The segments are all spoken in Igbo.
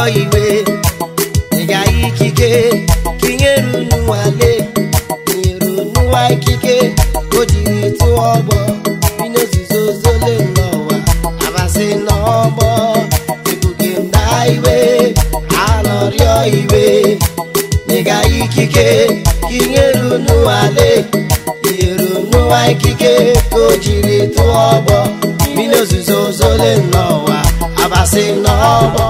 ọkọ igwe ịga ikike ka inyere unu nwale nyere unu nwa ikike o jiri tụọ ọgbọ inozuzo zole n'ụwa abasị n'ọgbọ ebuge na iwe alọrịọ iwe ịga ikike ka inyere unu nwale nyere unu nwa ikike ka o jiri tụọ ọgbọ inozuzo zole n'ụwa abasị n'ọgbọ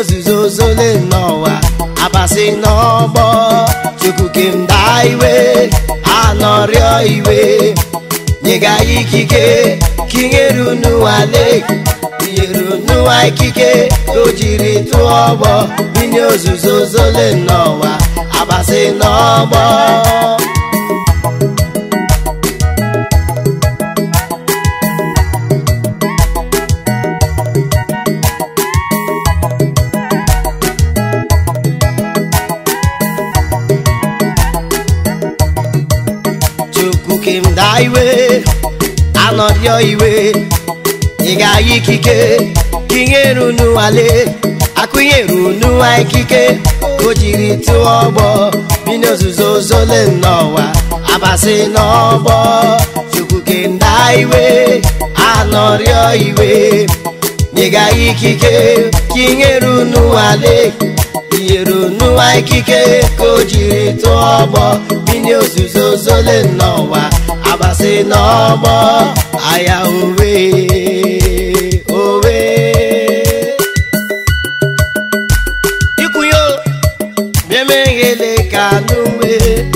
ozuzo le n'ụwa abasị n'ọgbọ chukwu kemda iwe anọrịọ iwe nyega ikike kinyere unụwa leki tinyere unụwa ikike o jiri tụọ ọgbọ inye ozuzo zole n'ụwa abasị n'ọgbọ nwoke m daa iwe anọrịọ iwe ị ga-aya ikike kinyere unu wale akụnyere unu nwa ikike o jiri tụọ ọgbọ bi n'ozuzo zole n'ọwa abasị n'ọgbọ chukwu ke ndaa iwe anọrịọ iwe ị ga-aya ikike kinyere unu wale ikike ka o jiri tụọ ọgbọ mmiri ozuzo zole n'ụwa abasị n'ọgbọ ahịa owe owe ikwunye bịa meghele ka anụ